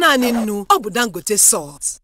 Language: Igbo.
naanị nnu ọ bụ Dangote salt